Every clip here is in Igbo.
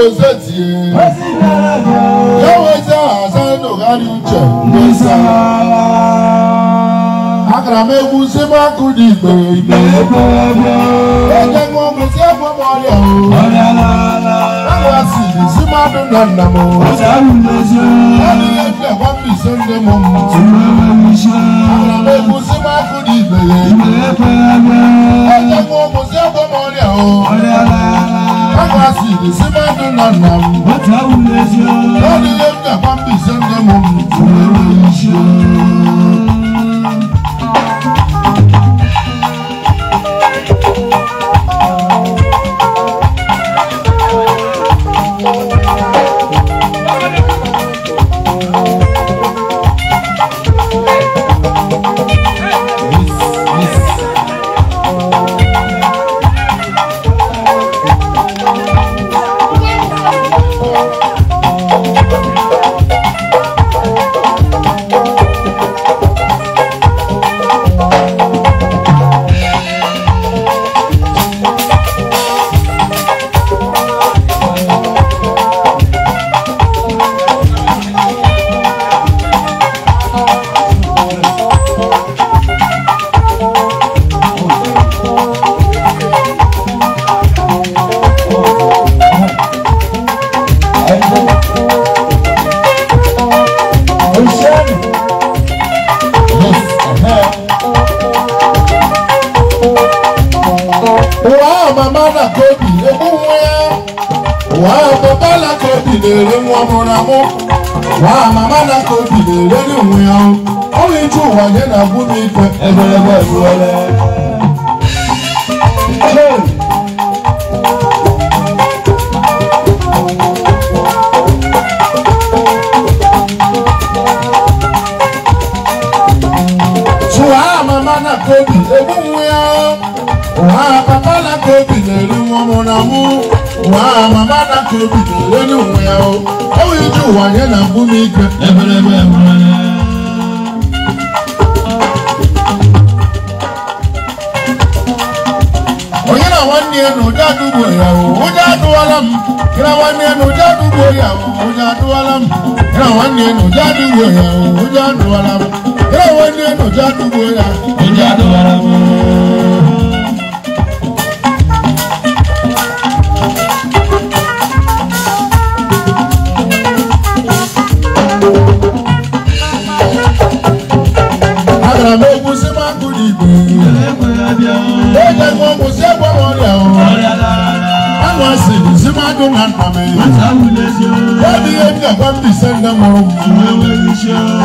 ozetie yaweze hasan ogari uche mbesa agara m egwu si m akụ dị igbe igbe eje ṅụọ ọgwụ si egwu m ọrịa agwa si si m adụ na nna m ọdịghị ekwa m ise ndị m m agara m egwu si m akụ dị igbe eje ṅụọ ọgwụ si egwu m ọ gbasiri na mmadụ nọ na m bilere nwa mụramụ nwa mama na ka o bilere n'onwe ya ọrụ ịchụ ụwa ya na abụ n'ikwe eberebe ebuole Tụwa mama na kobi ebu nwa ya wa papa na ka obi na-eru ọmụ na mụ wa mama na ka obi na-ere n'onwe ya o ọwụ iji ụwa nye na mbụ m ike eberebe nwere onye na nwanne ya na ụdị adụgbo ya o ụdị adụwala m gị na nwanne ya na ụdị adụgbo ya o ụdị adụwala m gị na nwanne ya na ụdị adụgbo ya o ụdị adụwala m gị na nwanne ya na ụdị adụgbo ya o ụdị do na ndame. Wadi ye nda ba mbi se nda moro.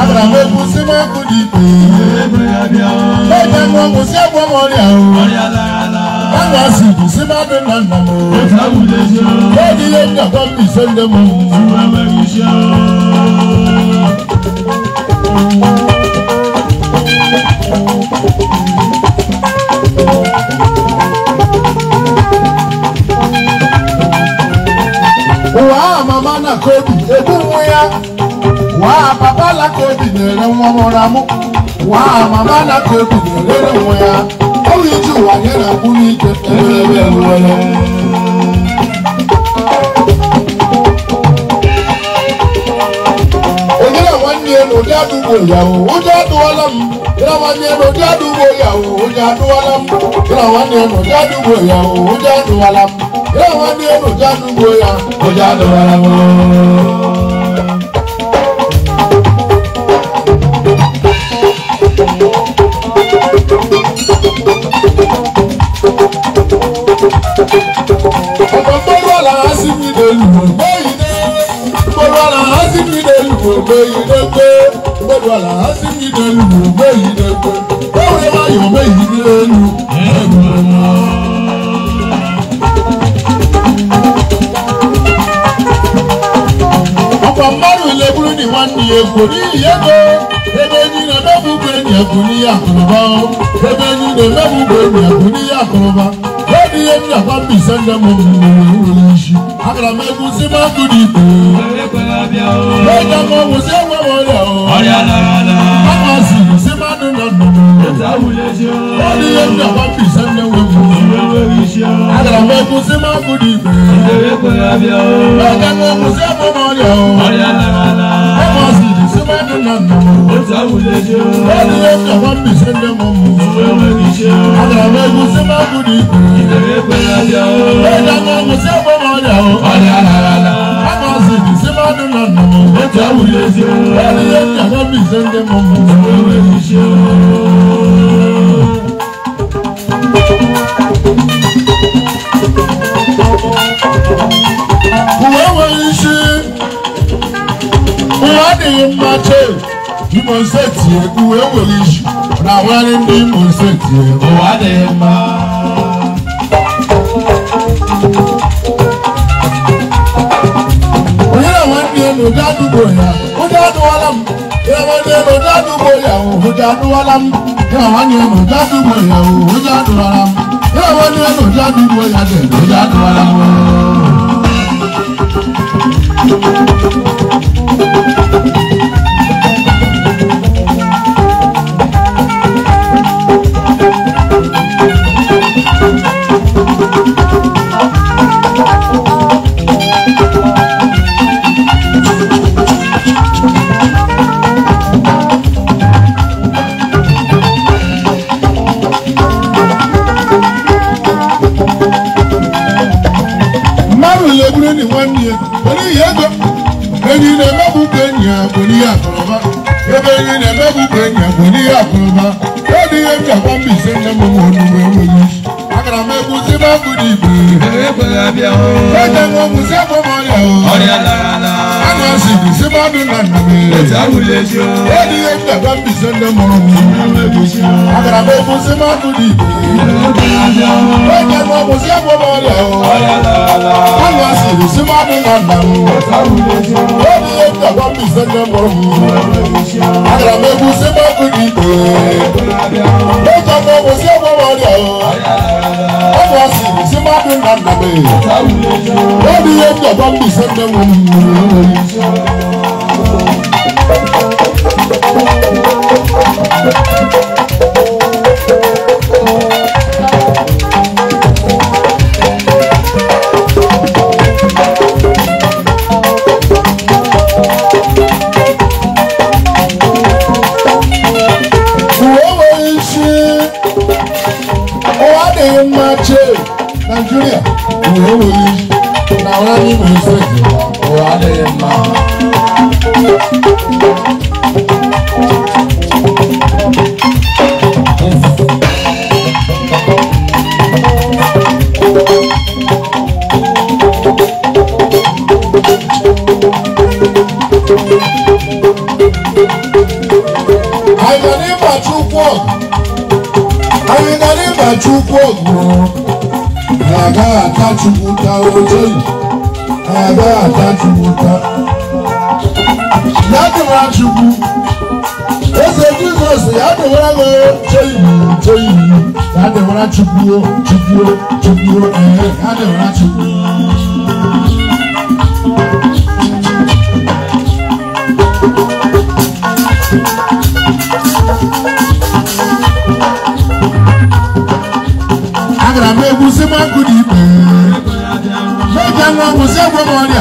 Abra we ku si ma ku di pe. Be ja mo ku si abo mo ri awo. Banga si ku si ma do na ndame. Wadi ye nda ba mbi se nda moro. Thank you. kobi egwu nwa ya waa papa la kobi na-ere nwa mụrụ amụ waa mama na kobi na-erere nwa ya ọrụ iji ụwa nye na mkpụrụ ike ewere ewere onyere nwanne ya na ụdị adụgbo ya o ụjọ adụwala m ịra nwanne ya na ụdị adụgbo ya o ụjọ ewa ni enu janu gboya kò já lọ rárá mọ́. ọ̀pọ̀ gbọ́dọ̀ làá sí mi lè lù ú gbóyè dé gbọ́dọ̀ làá sí mi lè lù ú gbóyè dé gbé gbọ́dọ̀ làá sí mi lè lù ú gbóyè dé gbé gbọ́dọ̀ làá yọ̀ mẹ́yìn lè lù ú ẹ̀gbọ́n náà. ọ̀pọ̀ márùn ilé búrúdì wọn ní èkó ní ìyẹ́gbẹ́ ebe ní na mẹ́fúgbé ní ẹ̀kú ní àkùrọ̀bá o ebe ní na mẹ́fúgbé ní ẹ̀kú ní àkùrọ̀bá lórí èmi àpá bì sẹ́ńdẹ̀ mọ̀ mi ní ìwé ìwé iṣu àkàrà mẹ́kún sí máa kú ní ìpè. lọ́jà mọ̀ wò sí ẹ̀wọ̀n wọlé o. ọ̀rẹ́ àlàálà. báwa sì sí máa dùn lọ́dún. lórí èmi àpá bì sẹ́ńdẹ̀ wọ oríṣià. Àgbàgbọ́ kù sí máa kú di ìpè. Ìdèrè pé abíọ́. Lọ́kẹ́ mo kù sí ọmọ ọmọ rẹ̀ o. Ọ̀yà làlàlà. Ọmọ sì dì sí mẹ́rin nànà. Ó ta wulẹ̀ jẹ́ o. Lọ́ọ̀ni yóò kà wọ́n bì sí ndé mọ́ mu. Òwe oríṣià. Àgbàgbọ́ kù sí máa kú di ìpè. Ìdèrè pé abíọ́. Lọ́kẹ́ mo awari bi mo se tie o wa de ma. Oyè wọn di ẹnu dádúgbò yà, ó dádú wọn lámù. Oyè wọn di ẹnu dádúgbò yà, ó dádú wọn lámù. Oyè wọn di ẹnu dádúgbò yà, ó dádú wọn lámù. Oyè wọn di ẹnu dádúgbò yà, ó dádú wọn Thank you. ebe yi na-emebu ka enyi abụ n'ihe akụrụba ọ dịghị eji agwa mba ise nne m nwe onu budi bu ebe abia o ete mo musa mo mo ya o ori ala ala ana si bi se ma du na na mi ete awule ji o edi e da ba bi se ndo mo mi agara be mo se ma budi bu ebe abia o ete mo musa mo mo ya o ori ala ala ana si bi se ma du na na Crossing, Zimbabwe and Nabe. Where the end of all the same Chukwu a agaghị atachụpụta oche agaghị atachụpụta ya dịwa Chukwu eze Jizọs ya dịwara m oche iwu oche iwu ya dịwara Chukwu Chukwu Chukwu ee ya dịwara Chukwu si mo ku di pe me ja ngo mo se mo mo ri o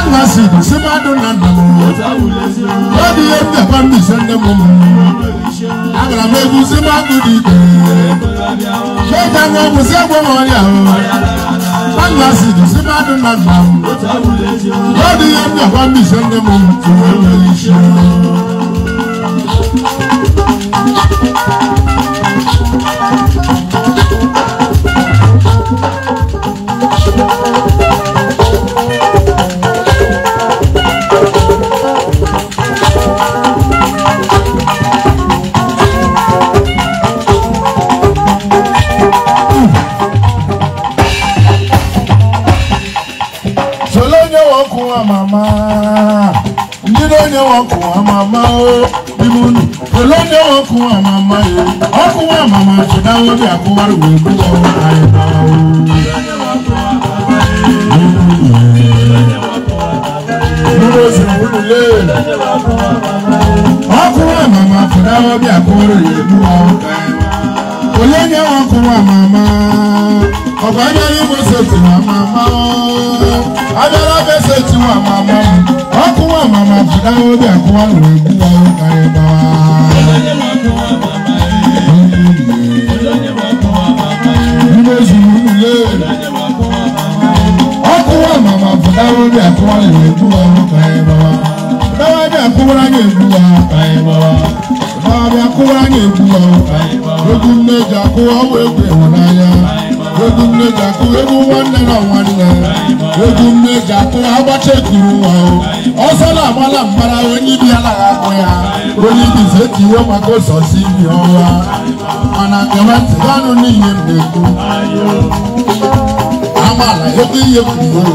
anga si di si ma do na na mo o di e te pa mi se nde mo mo agara me ku si ma ku di pe ja ngo mo se mo mo ri o anga si di si ma do na na mo o di e te pa mi se nde mo mo Thank you. èló e. ni wọn kù wọn màmá o bímú nù èló ni wọn kù wọn màmá yẹ wọn kù wọn màmá ṣèdáwó bí àkúwárò wẹ̀ kú wọn àyẹ̀bá o. Dúró sí òwúrò lé. Wọ́n kú wọn màmá ṣèdáwó bí àkúwárò yẹ kú wọn àyẹ̀bá o. Olé ni wọn kù wọn màmá ọ̀gbọ́n yẹn ní mo ṣe tiwọn màmá mama jìdá obi àkúwà lọ ẹ̀kúwà ó ká ẹ bá wa. Ilé zùlù ilé. Ọkúwà mama jìdá obi àkúwà lọ ẹ̀kúwà ó ká ẹ bá wa. Báwa bí àkúwà ní ẹ̀kúwà ó ká ẹ bá wa. Báwa bí àkúwà ní ẹ̀kúwà ó ká ẹ bá wa. Ogun méjì àkúwà ó wé gbé wọn náà egwu mmeja kụ egwu nwanne na nwanne egwu mmeja kụ agbacha ekuru o, ọsọ na-agbala mbara onye ibi anaghị akpụ ya onye ibi zetiwe maka ụzọzi ibi ọnwa mana kewetịganụ n'ihe m na-ekwu amala egwu ihe kwuru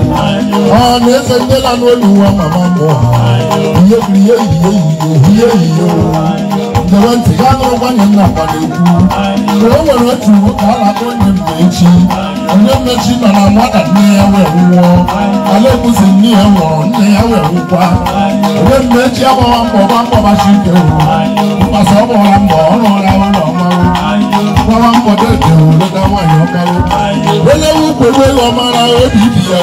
ọ na-eze ndela n'olu nwa mama mmụọ ha ihe kwuru ihe ehihie ehihie ihe ehihie gere ntị ya na ọgbanye nna gbana-ekwu mgbe o nwere otu nwoke a na-akpọ onye mgbe echi onye mmechi nọ na nwata nne ya wee nwụọ ala ebuzi nne ya nwụrụ nne ya wee nwụkwa onye mmechi agbawa mbọ gba mkpọbachi ike wụ mkpasa ọ gbọra mbọ ọ rụọla ụlọ mmanwụ gbawa mbọ dede were ga nwaanyị ọkarụ onye wukwe wee ọmara obi ibi ya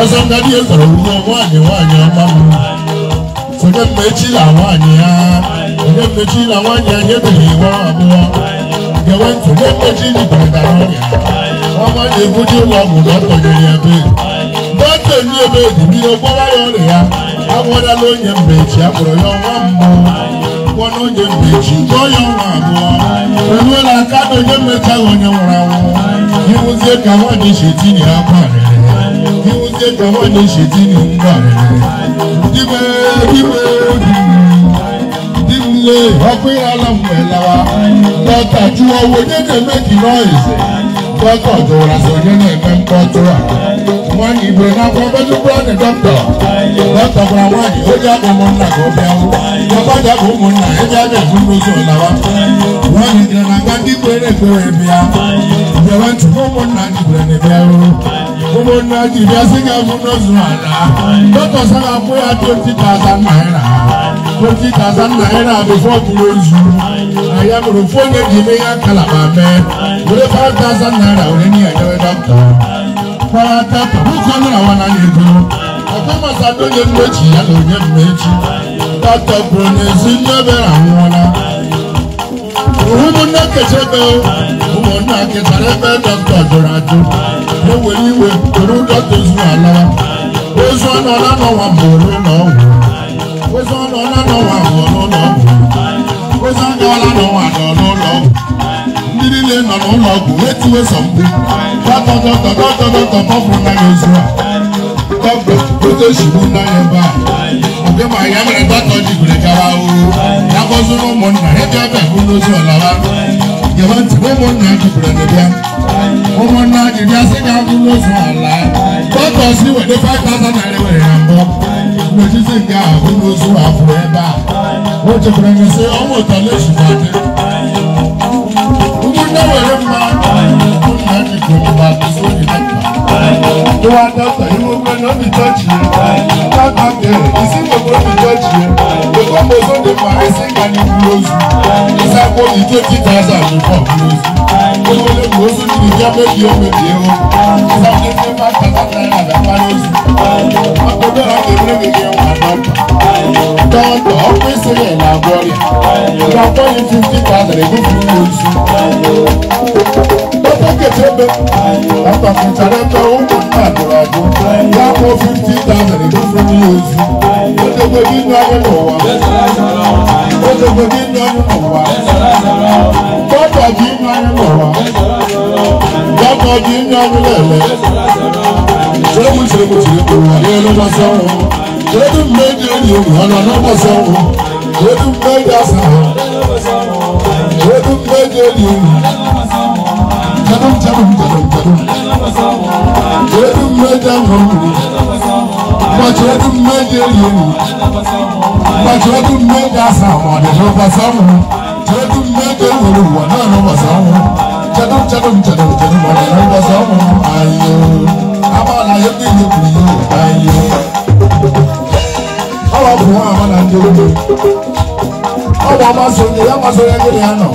ọzọ ngadi ezoro wunye nwaanyị nwaanyị ọma m sonye mmechi na nwaanyị ya ayé méjì làwọn yẹ ayé tèlé wọn àmú wọn. Gẹ̀wé ntùlé méjì ní gbọ̀ngà lọ́rùn yà. Ọmọ yẹn gúdí wọn mú lọ́tọ̀ yẹn yẹn bẹ́ẹ̀. Bọ́tẹ̀ ní ebe ìdìbí ọgbọ́n láyọ̀ rẹ̀ yá. Àwọn ọ̀dà ló yẹ mbèjì àbúrò yọ wọn mú. Wọn ló yẹ mbèjì gbọ́ yọ wọn àbú wọn. Ìwé la kádò yẹ mẹ́ta wọn yẹ wọ̀ra wọn. Ìwúzẹ́ kàwọn ní ṣètì ní apá rẹ̀. Ìwúzẹ́ kàwọn ní ṣètì ní ngbà rẹ̀. Dìbẹ́ ilé ìwọ́pẹ́ ọlọ́mù ẹ̀ lọ́wọ́ lọ́tà ju owó dédé méjì noise dọ́tọ̀ tó ra sọ̀yẹ́ náà ẹ̀fẹ́ ń bọ́ tó rà wọ́n ní ìbò náà fún ọbẹ̀tún búrọ́dì dọ́tọ̀ lọ́tọ̀ fúnra wọn ni ó jáde mọ́ nà kó fẹ́ wọ́n lọ́tọ̀ jáde mọ́ nà ẹ jáde fún lóṣù làwọn wọ́n ní ìdìrànà gbàdí péré péré bíà ìjọba tí wọ́n mọ́ nà ìdìrànà bíà gbogbo náà jìbí asínkà fún lóṣù àná lọ́tọ̀ sábà fún yàtọ̀ títà àtà náírà. 20,000 naira before close na ya mere ofu onye ji ime ya nkalaba mee were 5,000 naira were nye enyewe dọkịta kwarata puku naira wana ego ọkọmasado onye mmechi ya na onye mmechi dọkịta kwuru na ezi mmebere ụmụnne ụmụnna ebe dọkịta ewere iwe toro dọkịta zuru ala ozu n'ọnwa ọgwụ ozi ọla n'ụwa n'ụlọ n'ụwa ndị niile nọ n'ụlọ ọgwụ wetuwe a a bụ ụmụnna n'etiti nke a onyeozu afọ ebe a o chekwara na sị ọnwụ ụtọ na-esubadị ụmụnne were mma nna jikọba Ìwà dọ́tà ìwé ogun ẹ̀nà mi tọ́jú yẹn. Káàkà bẹ̀rẹ̀ ìsí gbogbo mi tọ́jú yẹn. Gbogbo mo tó de parí sí ìgbàni kúlóòzù. Ìsáko ìjó tí tàṣà mi pọ̀ kúlóòzù. Gbogbo lè kúlóòzù ní ìjọ méjì ó méjì ó. Ìsáko ìjó máa tàbátà ìrànlọ́pàá akọjọra kebere keke wa nọmba tọntọ ọkwụsị ya na agwọrị n'afọ yi fifty thousand ego furu ozu tọpọ ketebe ọtọ fitara ẹgbẹ ụmụ nna dụrụ adụ ya kpọ fifty thousand ego furu ozu odogbo gị nọ anyị n'ụwa odogbo gị nọ anyị n'ụwa tọpọ gị nọ anyị n'ụwa tọpọ gị nọ anyị n'ụwa. Jeremu jeremu jeremu wàlẹ́ ẹ̀ ló bá sọ̀rọ̀. Jeremu méje ni ìwọ̀nà ló bá sọ̀rọ̀. Jeremu méje sọ̀rọ̀. Jeremu méje ni jeremu jeremu jeremu jeremu. Jeremu méje sọ̀rọ̀. Bàjẹ́ ọdún méje yẹn. Bàjẹ́ ọdún méje sọ̀rọ̀ ọ̀dẹ̀ ló bá sọ̀rọ̀. Jeremu méje wọlé wọ̀ náà ló bá sọ̀rọ̀. Jeremu jeremu jeremu. masonye ya masonye gịnị ya nọ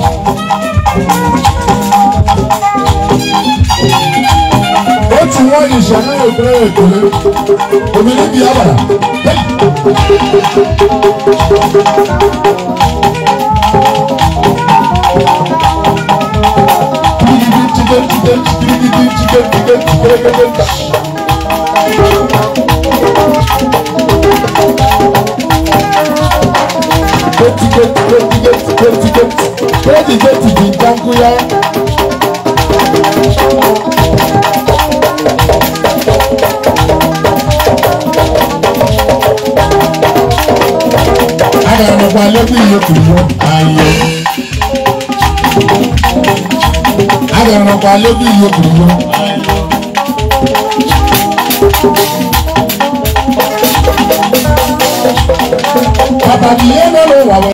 otu nwa ishi anaghị ekpere ya ekele omiri bi get, get, get, get, gotigoti gotigoti di danguya. ara ẹni ọba lẹ́bí yòókù mú ayé. ara ẹni ọba lẹ́bí yòókù mú ayé. Papa, do you know what?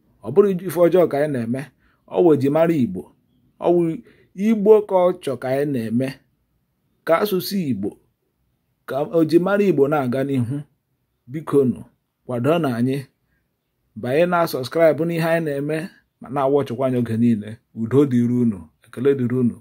ọ bụrụ ife ọjọọ ka anyị na-eme ọwụ mara igbo ọwụ igbo ka ọ chọ ka anyị na-eme ka asụsụ igbo ka ojimara igbo na-aga n'ihu bikonu kwado na anyị banye na sọskraịbụ n'ihe anyị na-eme ma na-awachịkwa anya oge niile udo dịrị unu ekele dịrị unu